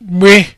gbe